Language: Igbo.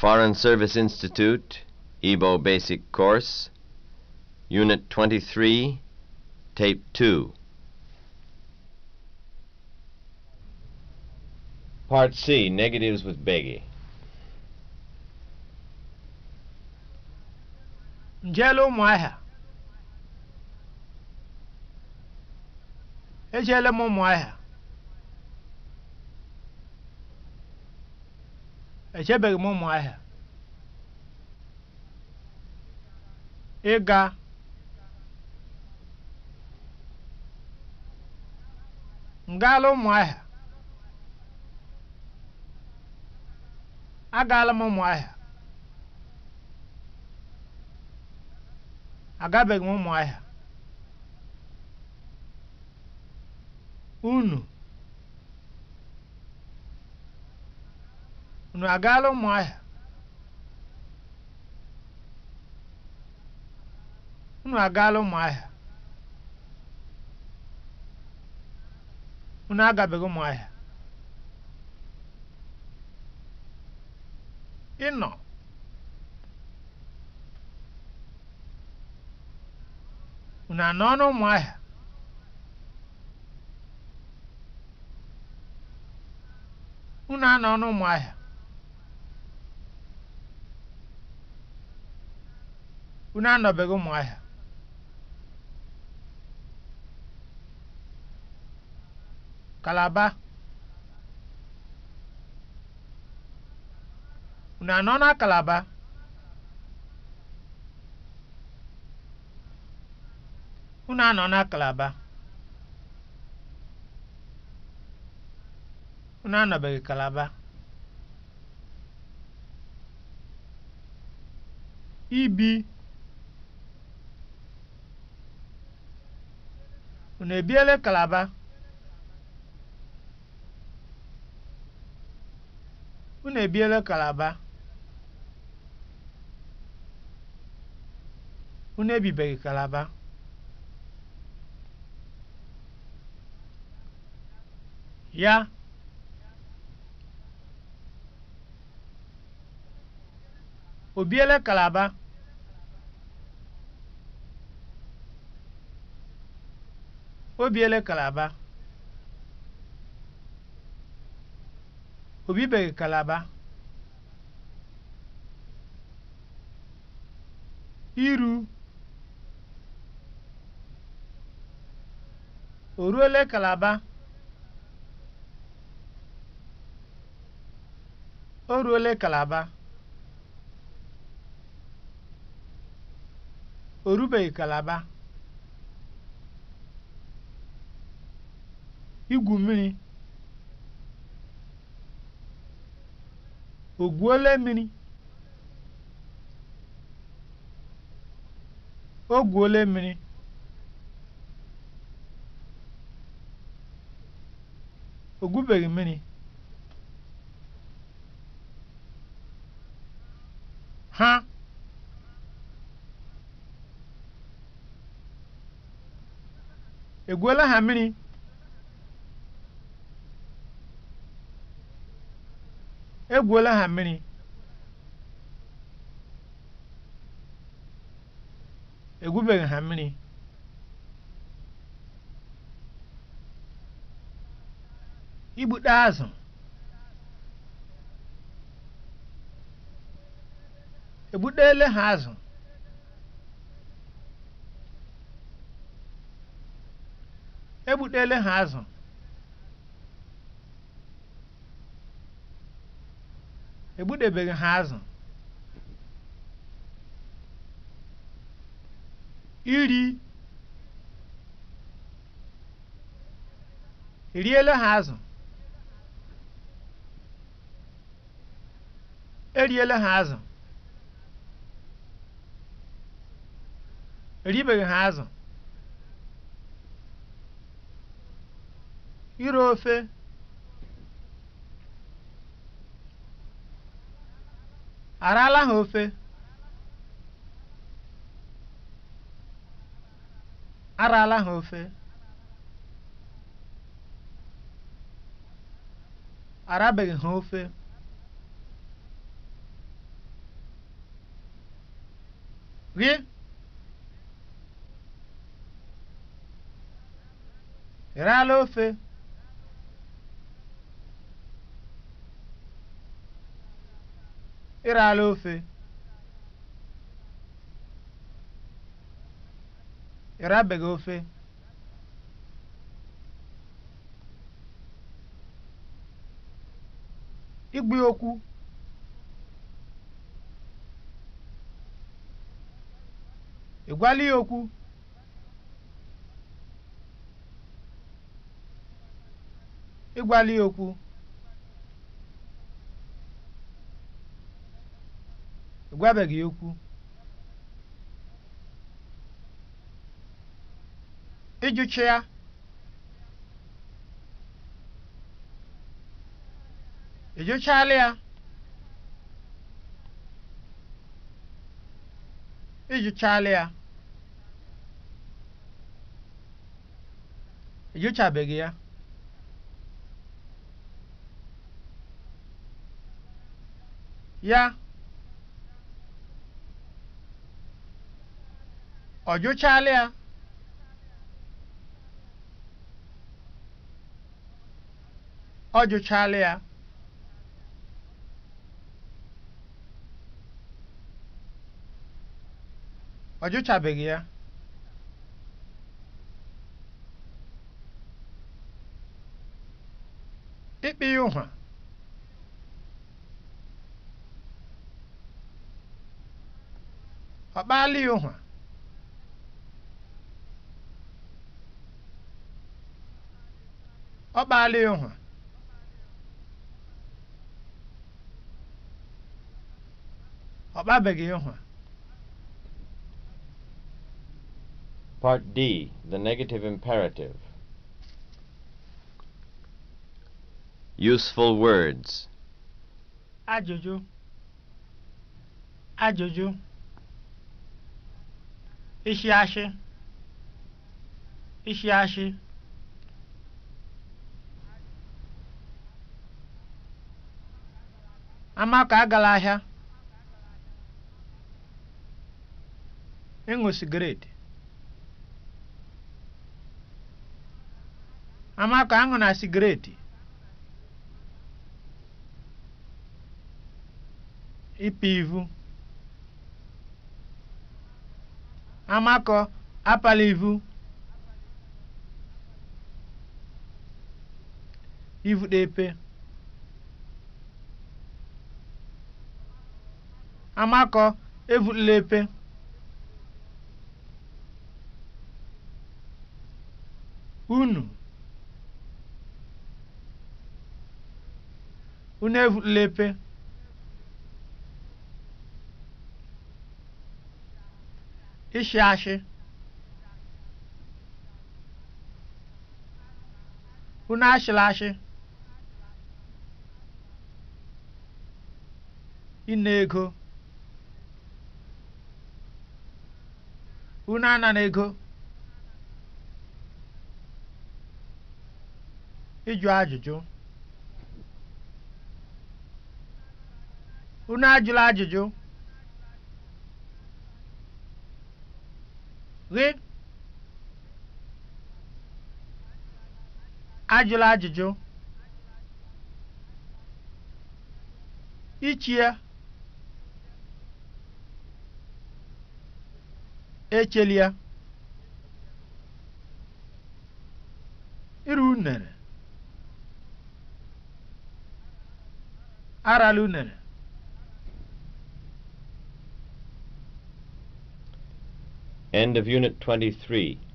Foreign Service Institute, Igbo Basic Course, Unit 23, Tape 2. Part C, Negatives with Beggy. echebeghị m ụmụahịa ịga ngaala ụmụahịa agaala m ụmụahịa agabeghị m ụmụahịa unu ụnụ agaala ụmụahịa ụnụ agaala ụmụahịa unu agabeghị ụmụahịa ịnọ unu anọ n'ụmụahịa unu anọ n'ụmụahịa unu anọbeghị ahịa kalaba unu anọ na kalaba unu anọ na kalaba unu anọbeghị kalaba ibi unu ebiele kalaba unu ebiele kalaba unu ebibeghị kalaba ya o biele kalaba Obiele Kalaba o Kalaba iru o ruole Kalaba o ruole Kalaba o rubeghị Kalaba igwu mmiri o mini mmiri mini mmiri mmiri ha egwuola ha mmiri egwuola ha mmiri egwubeghị ha mmiri igbute azụ egbutele ha azụ egbutele ha azụ egbudebeghị ha azụ iri riela ha azụ eriela ha azụ eribeghị ha azụ iri ofe Arala ha ofe? Arala ha ofe? Arabeghị ha ofe? Gị? Ị raala ofe? ala ofe ịrabeghị ofe igbu okwu ịgwala ya okwu ịgwala ya okwu gwabeghị okwu ịjụcha ya ịjụchala ya ịjụchala ya ịjụchabeghị ya ya ọ jụchala ya ọ jụchala ya ọ jụchabeghị ya ịkpị ya ụhwa ọ kpaala ya ụhwa ọ ịhụ ọ ịhụ Part D, the negative imperative. Useful words. Ajụjụ. Ajụjụ. Ishi ashị. Ishi ashị. Amaka agala ahịa ịṅụ sigireti, Amaka aṅụ na sigireti ipi ivu amakọ apala ivu ivu na epe Amakọ evulila epe. Unu. Unu evulila epe. Ịshị ashị. Unu ashịla ashị. ego. unu ana na ego ịjụ ajụjụ unu ajụla ajụjụ gị ajụla ajụjụ ya echelia ịrụ unere arala unere End of Unit 23